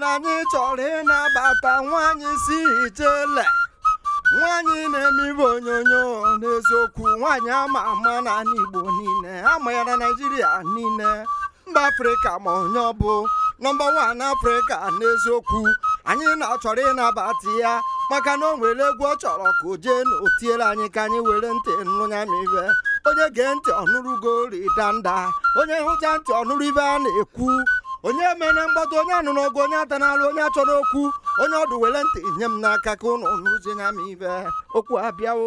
na anyị chọrọ ịnabata nwaanyị si ijele nwaanyị na-eme ibe onyonyo n'eziokwu nwaanyị ama ama n'ala Igbo niile ama ya na Naịjirịa niile mba Afrịka ma onye ọ bụ nọmba wan Afrịka n'eziokwu anyị na-achọrọ ịnabata ya maka na o nwere egwu ọ chọrọ ka o jee na o anyị ka anyị were ntị nụnya ma onye gee ntị ọnụrụ ugorida nda onye hụcha ntị ọnụrụ ibe a na-ekwu onye mene mgbado onye anụ n'ọgụ onye ata n'alụ onye achọ n'okwu onye ọdụ were ntị nye m n'aka ka ụnụ nụzie nya m ibe okwu abịawo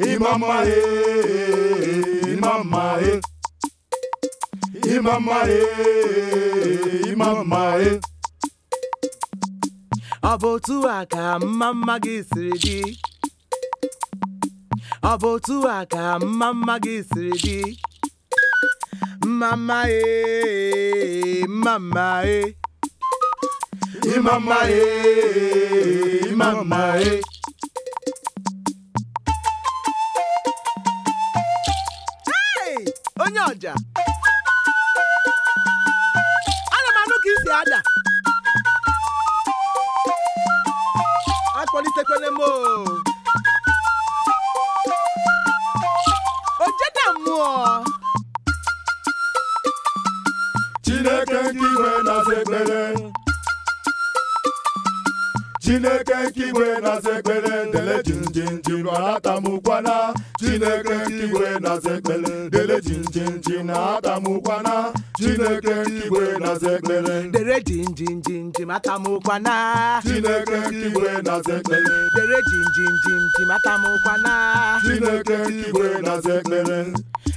Imama e, imama e. Imama e, imama e. Ọ bụ otu a ka mmamma gị siri dị. Ọ bụ otu a ka mmamma gị siri dị. Mmamma e, mmamma e. Imama abụọ Chineke nke iwe na-aza chineke nke igwe na-aza ekpere dele jinjinji rụara atamụkwana chineke nke igwe na-aza ekpere dele jinjinji na atamụkwana chineke nke igwe na-aza ekpere dele jinjinji matamụkwana chineke nke igwe na-aza ekpere dele jinjinji matamụkwana chineke nke igwe na-aza ekpere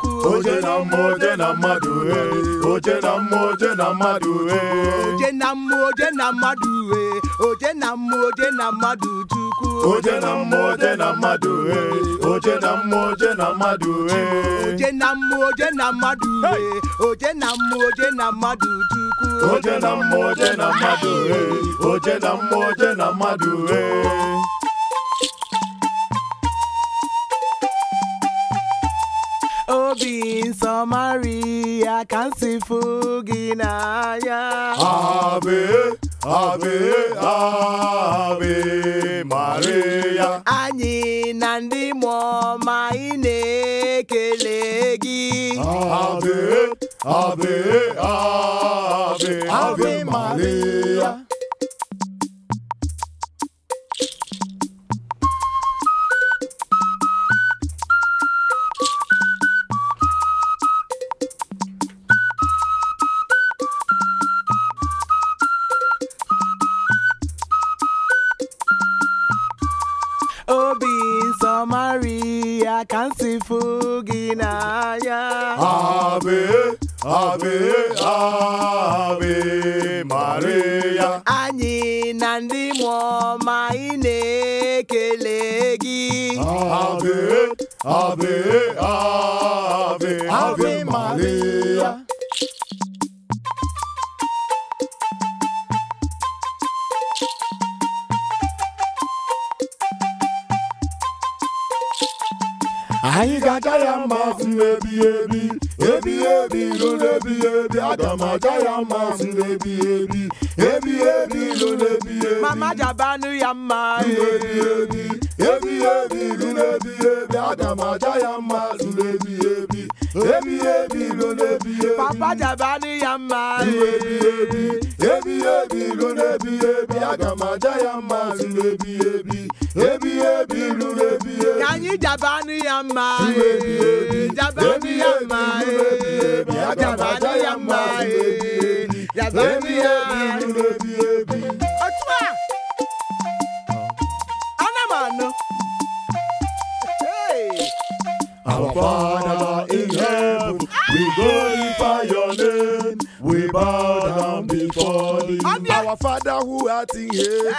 chukwu oje na mmụọ oje na mmadụ oje na mmụọ oje na mmadụ oje na mmụọ oje na mmadụ oje na mmụọ oje na mmadụ chukwu oje na mmụọ oje na mmadụ oje na mmụọ oje na mmadụ oje na mmụọ oje na mmadụ oje na mmụọ oje na mmadụ chukwu oje na mmụọ oje na mmadụ oje na mmụọ oje na mmadụ obi nsọmariya ka m si fụ gị n'anya abe abe abe maria anyị na ndị mmụọ ma ị na-ekele gị abe abe abe abe maria Obi Samaria fugina. Naya Ave, Ave, Ave Maria Anyị na ndị mụọ ma ị na-ekele gị Ave, Ave, Ave, Ave Maria anyị baby, baby, baby, baby, ebi baby, ebi ebi baby, baby, baby, baby, m mama jabanụ ya baby, baby, baby, baby, ebi baby, ebi ebi baby, baby, baby, baby, mma papa jabanụ ya baby, baby, baby, baby, ebi baby, ebi ebi ebi ebi lu ebi ebi. Kanyi jabanu ya mma ye, jabanu ya mma ye, Our Father in heaven, we glorify your name, we bow. Our Father who art in heaven,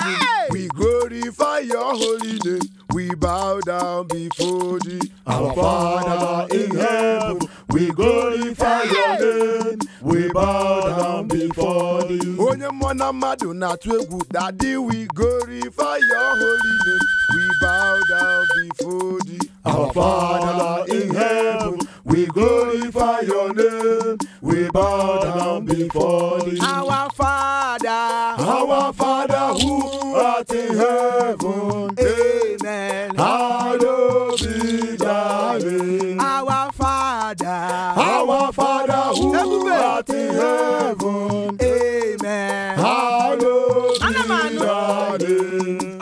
we glorify your holy name. We bow down before thee. Our Father in heaven we glorify your name. We bow down before you. Onye mwana madu na twegu. Daddy, we glorify your holy name. We bow down before thee. Our Father in heaven, we glorify your name. We bow down before thee. Our Father, our Father who art in heaven. Amen. Hallowed be thy name. Our Father. Father. Our Father who art in heaven. Amen. Hallowed be thy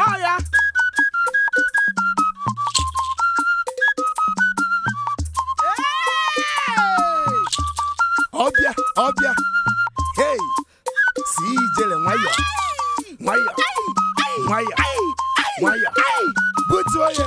Oh yeah. Ọbịa ọbịa hey si ijele nwayọ nwayọ nwayọ nwayọ butu onye.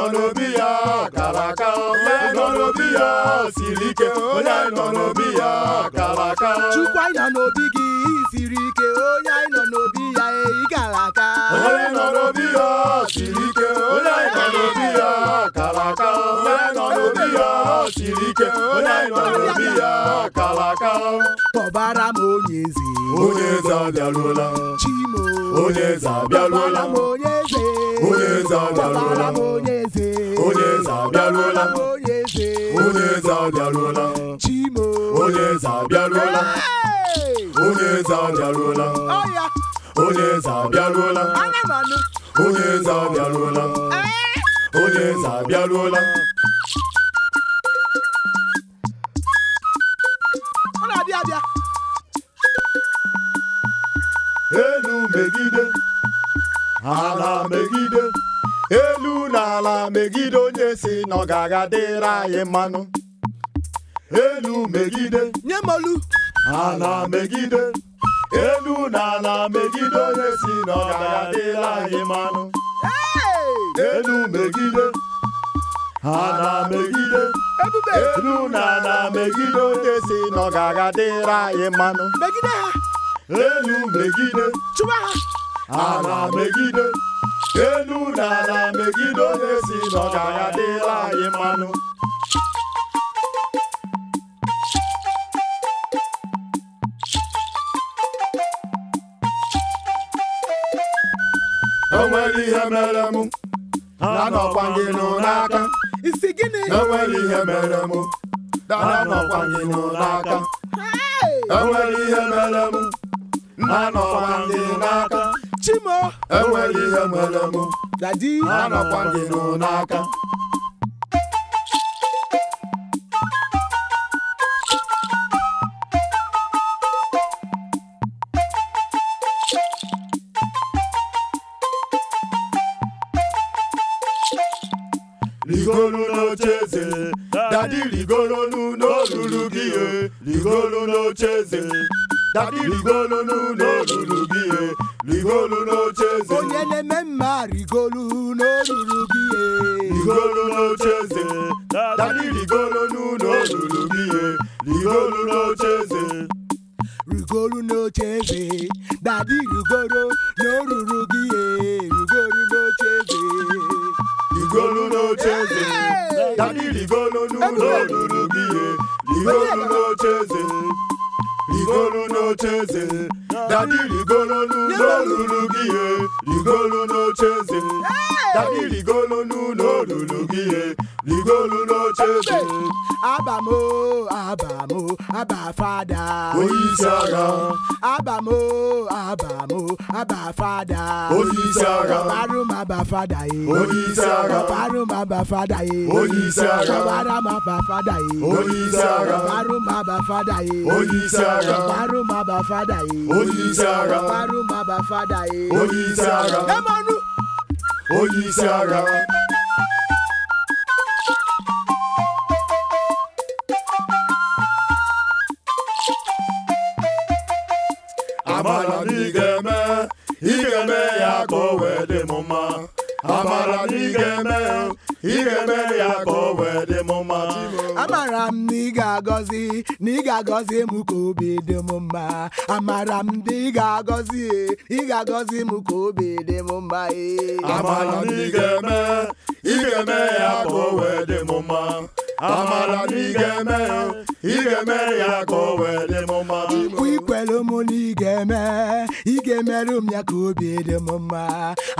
Nanobiya, kàràkà olè tọ̀nọ̀bíyà sìríkè olè tọ̀nọ̀bíyà kàràkà. chukwu anyị nọ n'obi gị siri ike onye anyị nọ n'obi ya eyi kàràkà. olè tọ̀nọ̀bíyà sìríkè olè tọ̀nọ̀bíyà kàràkà olè tọ̀nọ̀bíyà sìríkè olè tọ̀nọ̀bíyà kàràkà. tọ̀bara. onye eze onye eze abịarụla chimo onye eze abịarụla onye eze onye eze abịarụla onye eze onye eze abịarụla onye eze onye eze abịarụla chimo onye eze abịarụla onye eze abịarụla onye eze abịarụla onye eze abịarụla onye eze abịarụla ala megide onye si na ọ ga-aga dịrị anyị mmanụ elu megide nye olu. ala megide elu na ala megide onye si na ọ ga-aga dịrị anyị mmanụ elu megide ala megide elu na ala megide onye si na ọ ga-aga dịrị anyị mmanụ megide ha elu megide chụwa ha ala megide elu n'ala megide onye si n'ọgara dịla anyị mmanụ o ihe mere m na-anọkwa gị nụ n'aka enwere ihe mere m na-anọkwa gị nụ n'aka enwere ihe mere m na-anọkwa gị n'aka Chima enweghị ihe mere m dadi anọkwa gị n'aka rigolu n'oche z e dadi rigolonu n'olulu gị rigolu n'oche eze dadi rigolonu n'olulu gị rigolu n'ocheze onyele memma rigolu n'olulu gị rigolu n'ocheze dadị rigolu n'ụlọ olulu gị rigolu n'ocheze rigolu n'ocheze dadị rigoro n'olulu gị rigolu n'ocheze rigolu n'ocheze dadị rigolu n'ụlọ gị rigolu n'ocheze rigolu n'ocheze Daddy rigolonu no lulugie, rigolo no chese. Daddy rigolonu no lulugie, rigolo no chese. Abamo, Abamo, abafada, Father. Oyisara. Abamo, Abamo, Abba Father. Oyisara. Barum Abba Father. Oyisara. Barum abafada, Father. Oyisara. Barum Abba Father. Oyisara. Barum Abba Father. Oyisara. Barum Abba Father. Oyisara. Barum Abba Father. Oyisara. Emanu. Oyisara. amara na ị ga-eme ị ga-eme ya ka o wee dị m mma amara na ị ga-eme ị ga-eme ya ka o wee dị m mma amara m na ị ga-agọzi na ị ga-agọzi mụ ka obi dị m mma amara m na ị ga-agọzi ị ga-agọzi m ka obi dị m mma amara na ị ga-eme ị ga-eme ya ka o wee dị m mma amala n'igeme igeme ya ka o wele m mma ikwelu m n'igeme igemeru m ya ka obi dị m mma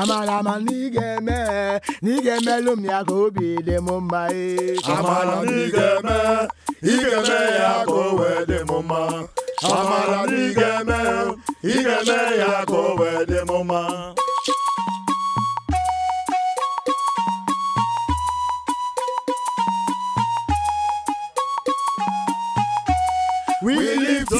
amala ma n'igeme n'igemeru m ya ka obi dị m mma amala n'igeme igeme ya ka o wee dị m mma amala n'igeme igeme ya ka o wee dị m mma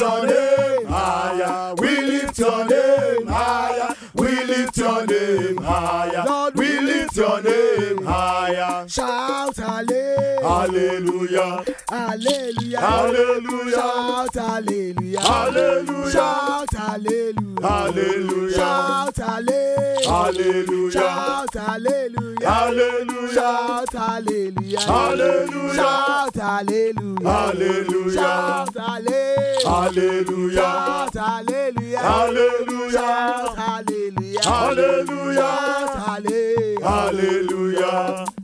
your name higher. We lift your name higher. We lift your name higher. we lift your name higher. Shout hallelujah. Hallelujah. Hallelujah. Shout hallelujah. Hallelujah. Shout hallelujah. Hallelujah. Shout hallelujah. Hallelujah. Shout hallelujah. Hallelujah. Shout hallelujah. Hallelujah. Shout hallelujah. Hallelujah. Shout hallelujah. Shout hallelujah. Hallelujah. Shout hallelujah. Hallelujah. Hallelujah.